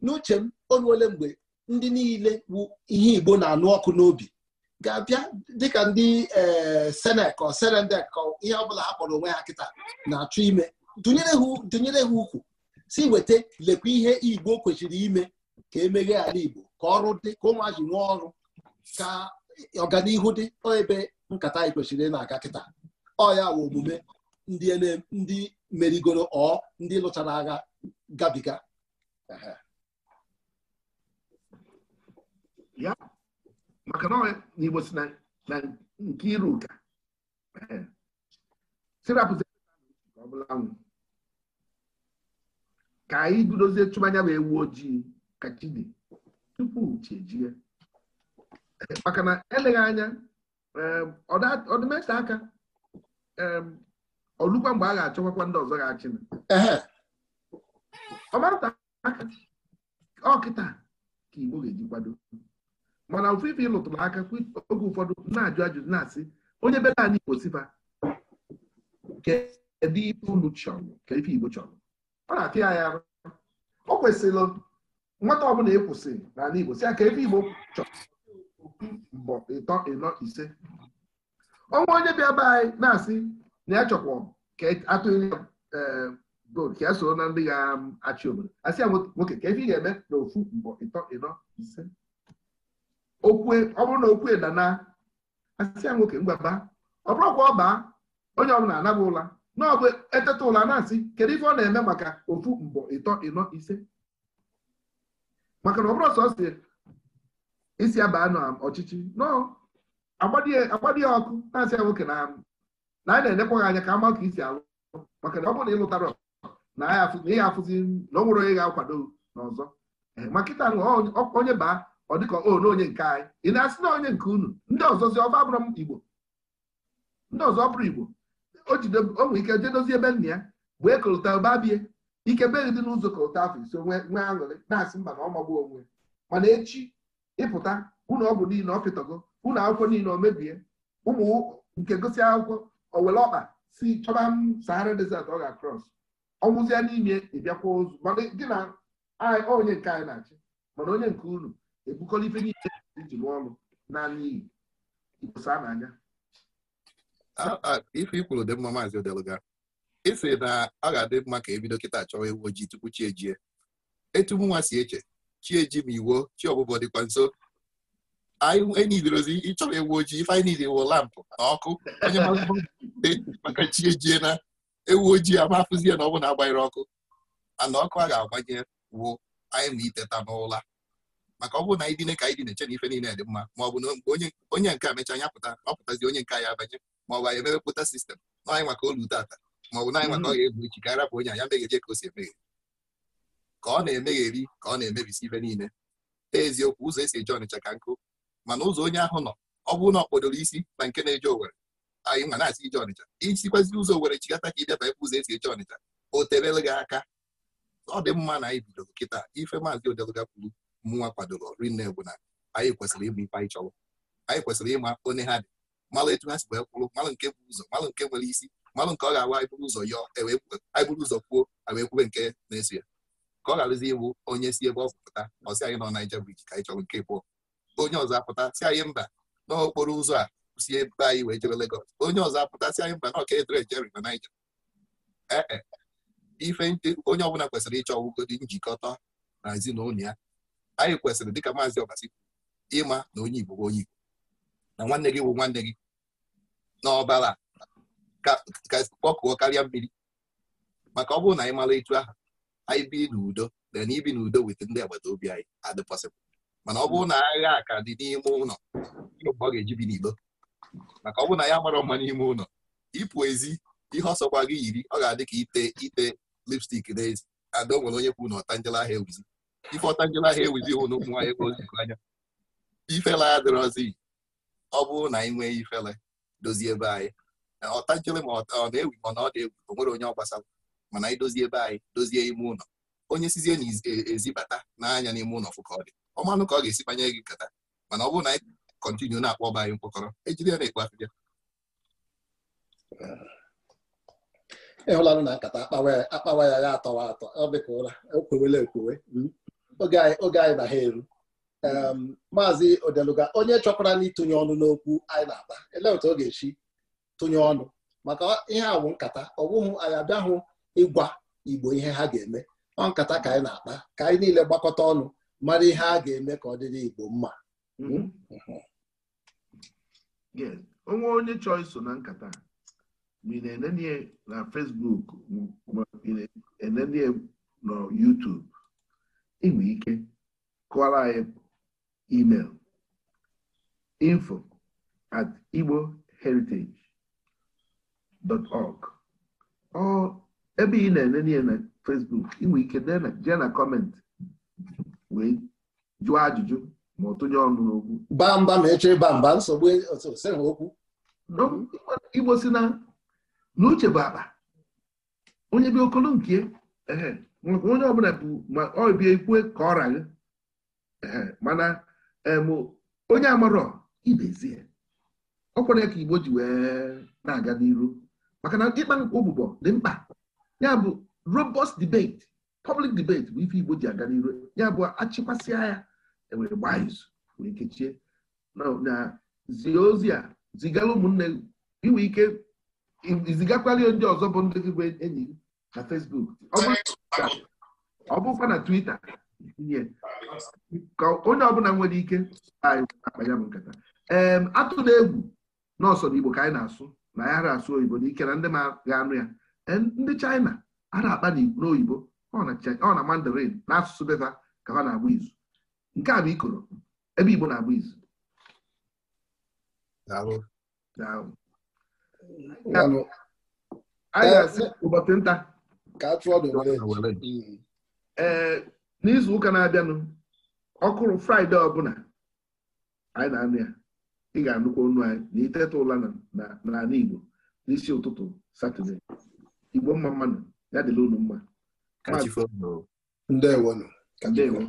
n'uche m onye ole mgbe ndị niile bụ ihe Igbo na-anụ ọkụ n'obi ga-abịa dịka ndị senek eh, ọ senedek ọ ihe ọbụla ha kpọrọ onwe ha kịta na-achọ ime dụnyere ha ukwu si weta lekwa ihe Igbo kwesịrị ime ka emeghe ala Igbo ka ọrụ dị ka ụmụazị nwee ọrụ ka ọganihu dị ebe nkata anyị kwesịrị ị na-aga kịta ọ ya wụ omume ndị e merigoro ọ ndị lụchara agha gabiga ya maka na n'Igbo si na nke iru ụka eh. sirapụzi ọ bụla nwụ ka anyị bidozie chụba anya bụ ewu ojii ka chi dị tupu chi eh, maka na eleghị anya ọdịmeta eh, aka ọlụkwa mgbe a ga-achọkwakwa ndị ọzọ ga-achị ọmata aka ọkịta oh, ka Igbo ga-eji kwado mana ofufe ịlụtụrụ aka oge ụfọdụ na-ajụ ajụjụ na-asị onye bere anyị Igbo siba kedu ife unu chọrọ ka ife Igbo chọrọ ọ na-atị ya ya o kwesịrị nwata ọbụla ekwụsị n'ala Igbo si ya ka ife Igbo chọrọ mbọ ịtọ ịnọ ise ọnwa onye bịa be anyị na-asị na ya chọkwa ka e atụghị eh, gold ka ya soro na ndị ga-achị obodo asị ya nwoke ka ife ị ga-eme na ofu mbọ ịtọ ịnọ ise okwe ọ bụrụ na okwe dana asịa nwoke ngwaba ọ bụrụkwa ọba onye ọbụla anaba ụla n'ọbụ eteta ụla na-asị kedu ife ọ na-eme maka ofu mbọ ịtọ ịnọ ise maka na ọ bụrụ sọ si isi abaa anụ ọchịchị nọọ agbadị ya ọkụ na-asị ya nwoke na na anyị na-enekwaghị anya ka ama ka isi alụ maka na ọ bụrụ na ịlụtara na ya afụzi na ọ nwere onye ga-akwado n'ọzọ ma kịta onye baa ọ dịka o na onye nke anyị ị na-asị na onye nke unu ndị ọzọzi ọba abụrụ m igbo ndị ọzọ bụrụ igbo o nwe ike jee dozie ebe nna ya wee kọlụta ụba bie ike beghị dị n'ụzọ kọlụta afọ ise nwee aṅụrị na-asị mba na ọ onwe mana echi ịpụta ụlọ ọgwụ niile ọ pịtọgo unu akwụkwọ niile o mebie ụmụ nke gosi akwụkwọ owere ọkpa si chọba m sahara desert ọ ga-akrọs ọnwụzie n'ime ịbịakwa ozu mana gị na onye nke anyị na-achị mana onye nke unu ebukọla ife niile iji lụọ ọrụ n'ala Igbo saa n'anya ife ikwuru dị mma maazị odeluga ịsị na ọ ga-adị mma ka ebido kịta chọwa ewu ojii tupu chi ejie etu mụnwa si eche chi eji ma iwo chi ọbụbọ dịkwa nso enyiderozi e ịchọrọ ewu ojii ife anyị niile wụ lampụ na ọkụ onye (laughs) maka chi ejie na ewu ojii amafụzie na ọ bụ na agbanyere ọkụ mana ọkụ a ga-agbanye wuo anyị ma iteta n'ụla maka ọ bụrụ na anyị dine ka anyị dị na-eche na ife niile dị mma ma ọ bụ na onye nke a mecha anya pụta ọ pụtazi onye nke ya abanye ma ọ bụ anyị emepụta sistem na anyị maka olu tata ma ọ bụ na anyị maka mm. ọ ga-egbu ichi ka arapụ onye anya megheje ka o si emeghe ka ọ na-emegheri ka ọ na-emebisi ife niile eziokwu ụzọ esi eje ọnịcha ka nkụ mana ụzọ onye ahụ nọ ọ bụrụ na ọ kpodoro isi na nke na-eje owere anyị nwa na-asị ije ọnịcha isikwazi ụzọ owere chigata ka ịbịaba ebe ụzọ esi eje ọnịcha o terele gị aka ọ dị mma na anyị bidoro kịta ife maazị odeluga kwuru nwa kwadoro rinne bụ na anyị kwesịrị ịbụ ife anyị chọrọ anyị kwesịrị ịma onye ha dị malụ etu ha si wee kwụrụ malụ nke bụ ụzọ malụ nke nwere isi malụ nke ọ ga-awa anyị bụrụ ụzọ yọọ e anyị bụrụ ụzọ kwuo wee kwube nke na-eso ya ka ọ gharazi ịbụ onye si ebe ọ pụta ọsị anyị nọ naija briji ka anyị chọrọ nke bụọ onye ọzọ apụta si anyị mba n'okporo ụzọ a si ebe anyị wee jebe Legọs onye ọzọ apụta si anyị mba na ọka jeri na naija ee e, ife onye ọbụla kwesịrị ịchọ ọgwụgodi njikọta na ezinụlọ ya anyị kwesịrị dịka maazị ọbasi ịma na onye igbo bụ onye igbo na nwanne gị bụ nwanne gị n'ọbara kpọkụọ karịa mmiri maka ọ bụrụ na anyị mara etu aha anyị bi n'udo na ibi n'udo weta ndị agbata obi anyị adị mana ọ bụrụ na agha ka dị n'ime ụlọ ọ ga-eji bi n'igbo maka ọ bụrụ na ya mara mma n'ime ụlọ ịpụ ezi ihe ọsọkwa gị yiri ọ ga-adị ka ite ite lipstik n'ezi ada o nwere onye kwu na ọta njela ahịa ewuzi ifọta njela ahụ ewuzi ụnụ ụmụ nwaanyị ozikọ anya ifele adịrọzi ọ bụrụ na anyị nwee ifele dozie ebe anyị ọta ma ọ na-ewu ma na ọ dị egwu o onye ọ gbasara mana anyị dozie ebe anyị dozie ime ụlọ onye sizie na ezibata n'anya n'ime ụlọ fụka ọ dị ọmanụ ka ọ ga-esi banye gị nkata mana ọ bụrụ na anyị kọntinu na-akpọ ọba anyị mkpọkọrọ ejide ya na-ekpo afịbịa ịhụlanụ na nkata akpawa ya ya atọwa atọ ọ dịka ụra ekwewe hmm. oge anyị na ha eru maazị odeluga onye chọkwara ịtụnye ọnụ n'okwu anyị na-ata elee otu ọ ga-esi tụnye ọnụ maka ihe a bụ nkata ọ bụghị anyị abịahụ ịgwa igbo ihe ha ga-eme ọ nkata ka anyị na-akpa ka anyị niile gbakọta ọnụ mara ihe a ga-eme ka ọ dịrị igbo mma hmm. Hmm. onwe onye chọọ iso na nkata ma ị na-enenie na Facebook ma ị na-enenie na YouTube inwe ike kụọrọ anyị email info at igbo heritage dot org ọ ebe ị na-enenie na Facebook inwe ike jee na kọmentị wee jụọ ajụjụ ma ọ ọnụ n'okwu baa mba ma echere baa mba nsogbu okwu igbo si na n'uche bụ akpa onye bịa okolo nke maka onye ọbụla bụ ma ọ bịa ikwe ka ọ raghị mana onye amarọ ibezie ọ kwere ka igbo ji wee na-aga n'iru maka na ịkpa ụgbụgbọ dị mkpa ya bụ robust debate public debate bụ ife igbo ji aga n'iru ya bụ achịkwasịa ya enwere gbaa izu wee kechie na ozi a zigara ụmụnne inwe ike izigakwala ndị ọzọ bụ ndị gị enyi na fesbuk ọ bụkwa na Twitter ka onye ọbụla nwere ike akpa ya bụ nkata ee atụ na egwu nọọsọ na Igbo ka anyị na-asụ na ya ara asụ oyibo n'ike na ndị ma ga-anụ ya ndị China a na-akpa n'oyibo ọ na Mandarin na asụsụ beva ka ha na-agba izu nke a bụ ikoro ebe Igbo na-agba izu ee mm. eh, n'izu ụka na-abịanụ ọkụrụ fraịde ọbụla anyị na-anụ ya ị ga-anụkwa ọnụ anyị na iteta ụla n'ala Igbo n'isi ụtụtụ satọde Igbo mma mmanụ ya dịla unu mma ndewo